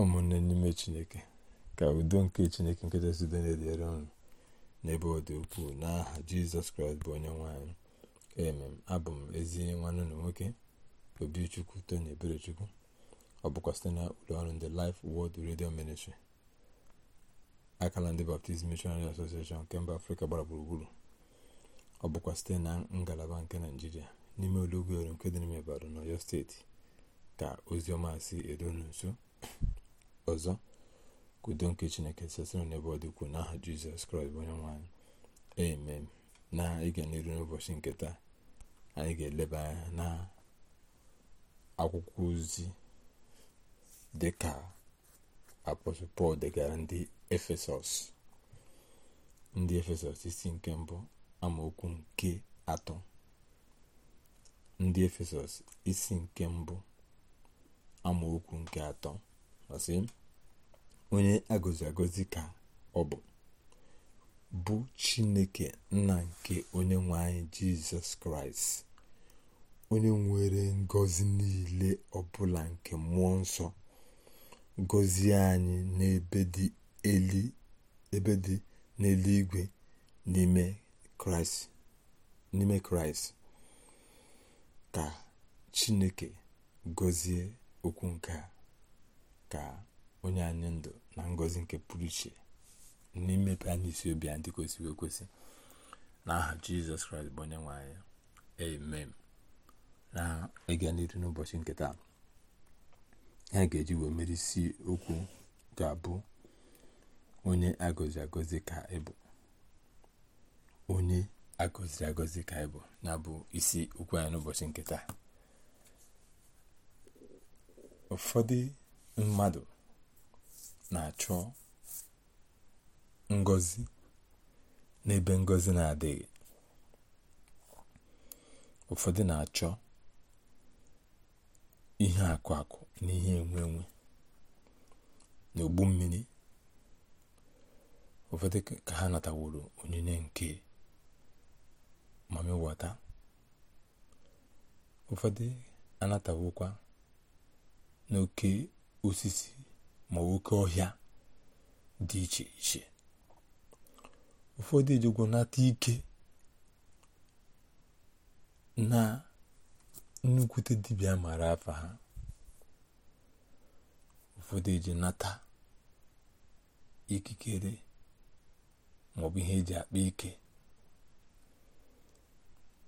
ụmụnne n'ime chineke ka udo nke chineke nke nkechasite na-edere ọnụ n'ebe ọ dị ukwuu n'aha jizọs kraịst bụ onye nwanyị emem abụ m ezi nwanne na nwoke obichukwu tony eberechukwu ọ bụkwa site na ụlọọrụ ọrụ ndị Life Word redio ministri akala ndị Baptist Missionary Association nke mba afrịka gbara gburugburu ọ bụkwa site na ngalaba nke naijiria n'ime olugweru nke dị n'ime Ibadan ọyọ steeti ka ozi ọma si eru nso ọzọ ka nke chineke sesịrị n'ebe ọ dị n'aha jizọs kraịst bụ onye nwanyị amen na ịga n'iru n'ụbọchị nke taa anyị ga-eleba anya na akwụkwọ ozi dịka ka pọl degara ndị efesọs ndị efesọs isi nke mbụ amaokwu nke atọ ndị efesọs isi nke mbụ amaokwu nke atọ tụkwasị onye agọzi agọzi ka ọ bụ bụ chineke nna nke onye nwe anyị jizọs kraịst onye nwere ngozi niile ọbụla nke mmụọ nsọ gọzie anyị n'ebe dị n'eluigwe n'ime kraịst ka chineke gọzie okwu nke a ka onye anyị ndụ na ngọzi nke pụrụ iche n'imepe anyị isi obi a dị kwesịrị ekwesị n'aha jizọs kraịst bụ onye nwe anyị amen na ịga n'iru n'ụbọchị nke taa ha ga-eji wee mere isi okwu ga-abụ onye agọzi agọzi ka ịbụ onye agọziri agọzi ka ịbụ na bụ isi okwu anyị n'ụbọchị nke taa ụfọdụ mmadụ na-achọ ngọzi n'ebe ngọzi na-adịghị ụfọdụ na-achọ ihe akụ akụ na ihe enwe enwe na ogbu mmiri ụfọdụ ka ha nataworo onyinye nke mami wọta ụfọdụ anatawokwa n'oke osisi ma oke ọhịa dị iche iche ụfọdụ ejegwo nata ike na nnukwute dibịa mara afa ha ụfọdụ eji nata ikikere maọbụ ihe eji akpa ike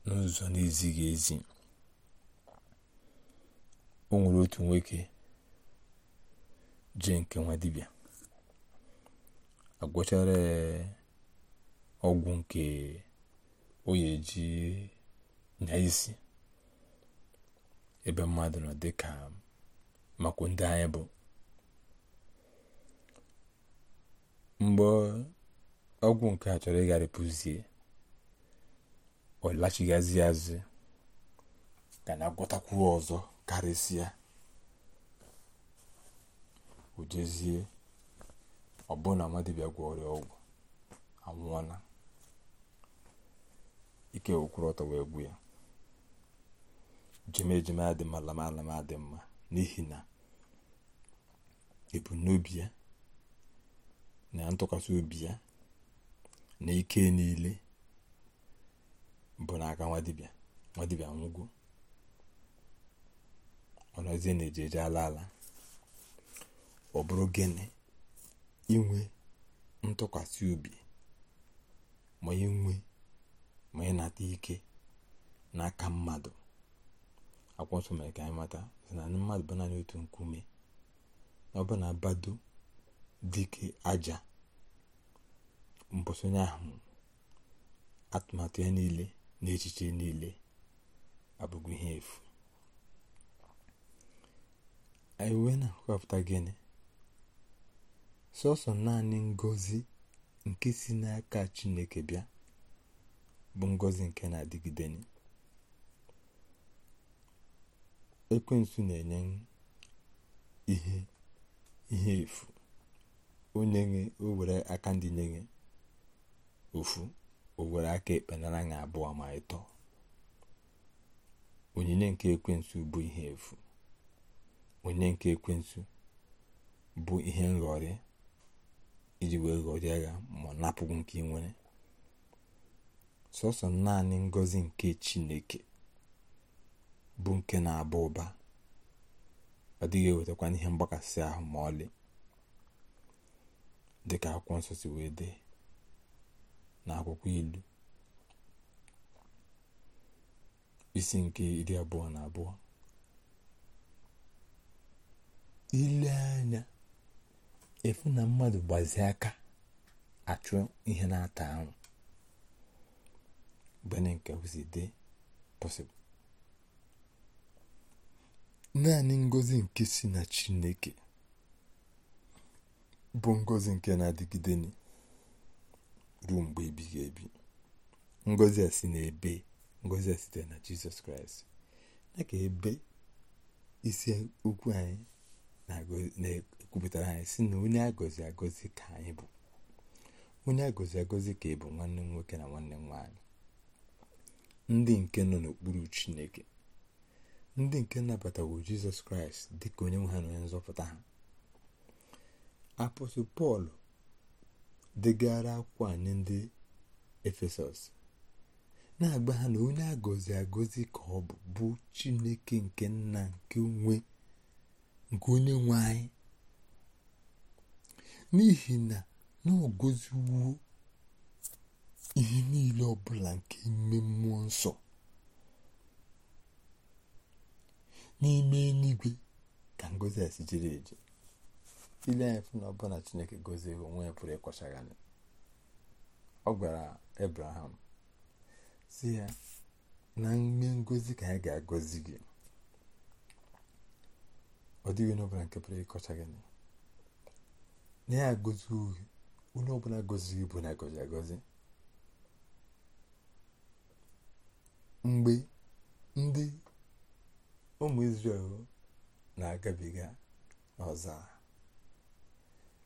n'ụzọ na-ezighị ezi o nwere otu nwoke Je nke nwa dibịa agwọchara ọgwụ nke onye ji nya isi ebe mmadụ nọ dị ka makwa ndị anyị bụ mgbe ọgwụ nke a chọrọ ịgharịpụzie ọ lachighazi azụ ga na agwọtakwu ọzọ karịsịa o jezie ọbụna gwa ọrịa ọgwụ anwụọna ike okwuru ọtọ wee gbu ya ejima ejima adị mma lamalama dị mma n'ihi na ebumnobi ya na ntụkwasị obi ya na ike niile bụ n'aka nwadibịa nwadibịa nwụgo ọ nọzie na ejeje ala ala ọ bụrụ gịnị inwe ntụkwasị obi ma inwe ma ịnata ike n'aka mmadụ akwụkwọ mere ka anyị mata na mmadụ bụ naanị otu nkume na ọ bụ na bado dike aja mbọsonye ahụ atụmatụ ya niile na echiche niile abụghị ihe efu anyị wee na-akọpụta gịnị sọsọ naanị ngozi nke si n'aka chineke bịa bụ ngozi nke na-adịgide ekwensu na-enye ihe ihe efu onye nwe o were aka ndị nye ofu o were aka ekpe nara abụọ ma ịtọ onyinye nke ekwensu bụ ihe efu onyinye nke ekwensu bụ ihe nghọrị iji wee ghọrịa ya ma ọ napụghị nke ị nwere sọsọ naanị ngọzi nke chineke bụ nke na-aba ụba ọ dịghị ewetakwa ihe mgbakasị ahụ ma ọlị dịka akwụkwọ nsọ si wee dee na akwụkwọ ilu isi nke iri abụọ na abụọ ile anya efu na mmadụ gbazie aka achụ ihe na-ata ahụ bene nke si dị pọsịbụl naanị ngozi nke si na chineke bụ ngozi nke na-adịgide ruo mgbe ebighị ebi ngozi a si n'ebe ngozi a site na jizọs kraịst na ka ebe isi okwu anyị na kwupụtara anyị si na onye agọzi agọzi ka anyị bụ onye agọzi agọzi ka ị bụ nwanne nwoke na nwanne nwaanyị ndị nke nọ n'okpuru chineke ndị nke nabatawo jizọs kraịst dị ka onye nwe ha na onye nzọpụta ha apọstụl pọl degara akwụkwọ anyị ndị efesọs na-agba ha na onye agọzi agọzi ka ọ bụ bụ chineke nke nna nke onwe nke onye nwe anyị n'ihi na n'ogoziwo ihe niile ọbụla nke ime mmụọ nsọ n'ime eluigwe ka ngozi a si jere eje ile anyị fụ na ọbụna chineke gozie onwe ya pụrụ ịkwachagharị ọ gwara abraham si ya na mme ngozi ka anyị ga-agọzi gị ọ dịghị onye ọbụla nke pụrụ ịkọcha gị na a agọzi onye ọbụla gọziri ibu na agọzi mgbe ndị ụmụ Izrel na-agabiga n'ọzara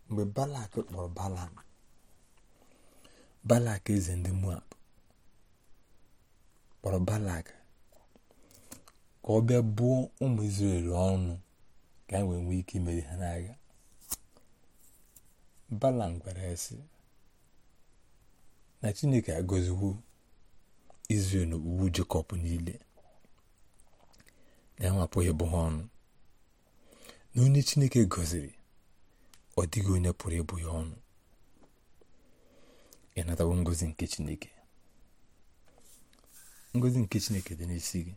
mgbe balak kpọrọ balam balak eze ndị moab kpọrọ balak ka ọ bịa bụọ ụmụ Izrel ọnụ ka e wee nwee ike imeri ha n'agha Balam gwara ya sị na Chineke agoziwo Izrel na niile na ya ịbụ ọnụ na onye Chineke gọziri ọ dịghị onye pụrụ ịbụ ọnụ ị ngozi nke Chineke ngozi nke Chineke dị n'isi gị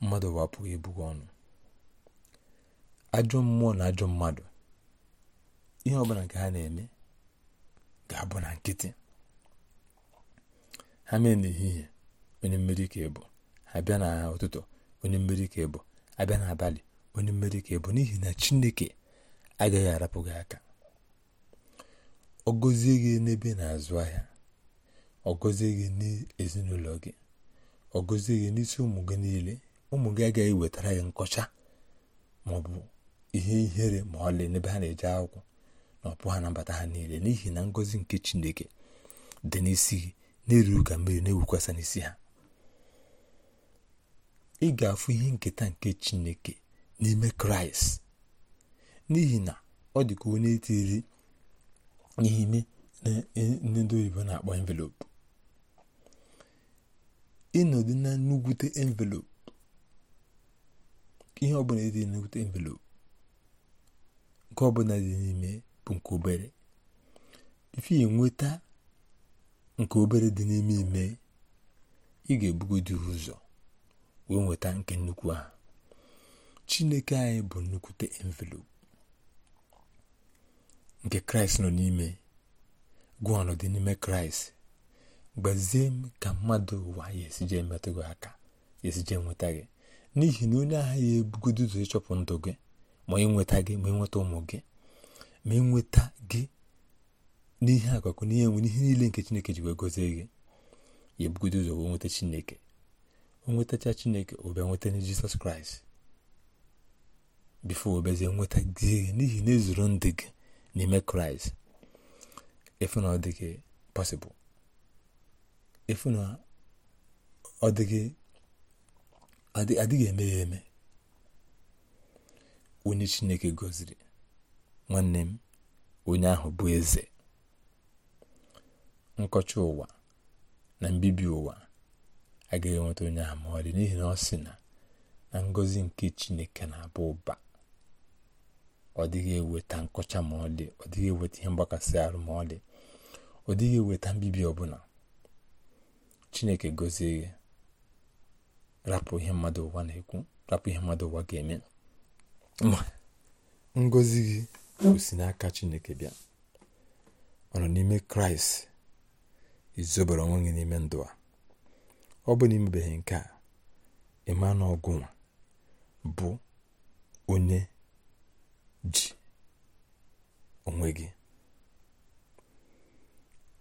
mmadụ bụ apụghị ịbụ ọnụ ajọ mmụọ na ajọ mmadụ ihe ọbụla nke ha na-eme ga-abụ na nkịtị ha mee n'ehihie onye mmeri ka ịbụ ha bịa na ụtụtụ onye mmeri ka ịbụ abịa n'abalị onye mmeri ka ịbụ n'ihi na chineke agaghị arapụ gị aka ọ gọzie gị n'ebe na-azụ ahịa ọ gọzie gị n'ezinụlọ gị ọ gọzie gị n'isi ụmụ gị niile ụmụ gị agaghị wetara gị nkọcha maọbụ ihe ihere ma ọlị n'ebe ha na-eje akwụkwọ Ọ ọpụ ha na mbata ha niile n'ihi na ngọzi nke chineke dị n'isi na-eruru ka mmiri na-ewukwasa n'isi ha ị ga-afụ ihe nketa nke chineke n'ime kraịst n'ihi na ọ dị onye tiri ihe ime ndị oyibo na-akpọ envelopu ịnọdụ na ihe ọbụla dị envelopu nke ọbụla dị n'ime bụ nke obere ife nweta nke obere dị n'ime ime ị ga-ebugodi ụzọ wee nweta nke nnukwu ahụ chineke anyị bụ nnukwute envelopu nke kraịst nọ n'ime gụọ dị n'ime kraịst gbazie m ka mmadụ ụwa ya esije emetụ gị aka ya esije nweta gị n'ihi na onye agha ya ebugodo ụzọ ịchọpụ ndụ gị ma gị ma ịnweta ụmụ gị ma nweta gị n'ihe akụkụ n'ihe nwe n'ihe niile nke chineke ji wee gozie gị ya ebugodo ụzọ wee nweta chineke onwetacha chineke ụbịa nweta na jizọs kraịst bifo obezie nweta gị n'ihi na ezuru ndị gị n'ime kraịst efu na ọ dịghị pasịbụl efu na ọ dịghị adịghị eme ya eme onye chineke gọziri nwanne m onye ahụ bụ eze nkọcha ụwa na mbibi ụwa agaghị enweta onye ahụ ma ọ dị n'ihi na ọ sị na na ngọzi nke chineke na abụ ụba ọ dịghị eweta nkọcha ma ọ dị ọ dịghị eweta ihe mgbakasị arụ ma ọ dị ọ dịghị eweta mbibi ọbụla chineke gọzie gị rapụ ihe mmadụ ụwa na-ekwu rapụ ihe mmadụ ụwa ga-eme ma ngọzi gị kwụsị si n'aka chineke bịa ọ nọ n'ime kraịst izobere onwe gị n'ime ndụ a ọ bụ na imebeghị nke a ịma ọgụnwa bụ onye ji onwe gị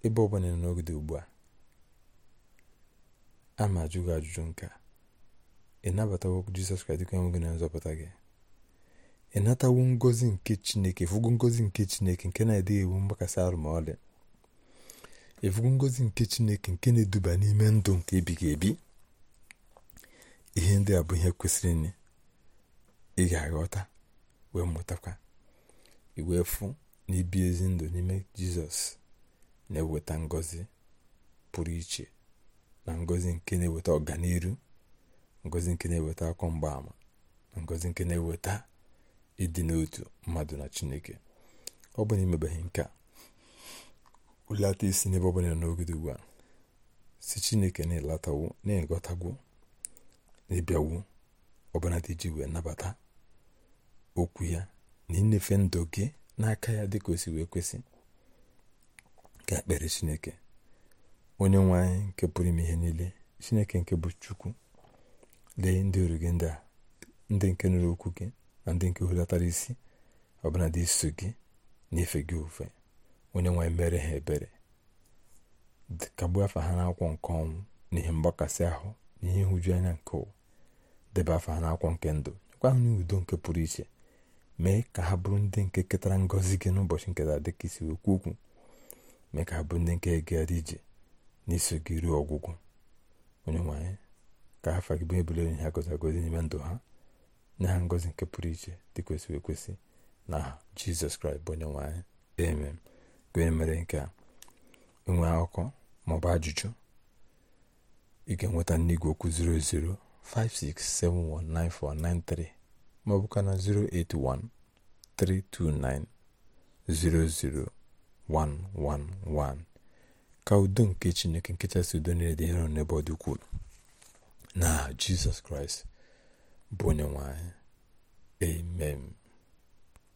ebe ọ bụla n'oge ugbu a ama ma ajụjụ nke a ị nabatawo Jizọs Kraịst dịka onwe gị na nzọpụta gị ịnatawo ngozi nke chineke efugo ngozi nke chineke nke na-adịghị ewu mgbakasị arụmọlị efugo ngozi nke chineke nke na-eduba n'ime ndụ nke ebighị ebi ihe ndị a bụ ihe kwesịrị ị ga-aghọta wee mụtakwa iwee fụ na ibi ezi ndụ n'ime jizọs na-eweta ngozi pụrụ iche na ngozi nke na-eweta ọganiru ngozi nke na-eweta akọ mgbaama na ngozi nke na-eweta ịdị n'otu mmadụ na chineke ọ bụ na imebeghị nke a ụlata isi n'ebe ọbụla n'ogide ugbu a si chineke na-elatawo na-eghọtagwo na-ebịawo ọbụna dị iji wee nabata okwu ya na ịnyefe ndụ gị n'aka ya dịka o si wee kwesị ka ekpere chineke onye nwe anyị nke pụrụ ime ihe niile chineke nke bụ chukwu lee ndị oru gị ndị a ndị nke nụrụ okwu gị na ndị nke hulatara isi ọbụla dị iso gị na-efe gị ofe onye nwanyị mere ha ebere kagbu afa ha n'akwụkwọ nke ọnwụ n'ihe mgbakasị ahụ na ihe nhụju anya nke ụwa debe afa ha n'akwụkwọ nke ndụ nyekwa ha udo nke pụrụ iche mee ka ha bụrụ ndị nke ketara ngọzi gị n'ụbọchị nketa dị ka isi okwu okwu mee ka ha bụrụ ndị nke egara ije n'iso gị ruo ọgwụgwụ onye nwanyị ka afa gị bụ ebule onye ha gozi agozi n'ime ndụ ha nye ha ngọzi nke pụrụ iche dị kwesịrị ekwesị na jizọs kraịst bụ onye nwe anyị eme mere nke a enwe akụkọ maọbụ ajụjụ ị ga-enweta n'igwe okwu 0056719493 maọbụka na 08132900111 ka udo nke chineke nkechasị udo niile dị hero n'ebe ọ dị ukwuu na jizọs kraịst bụ onye nwe amen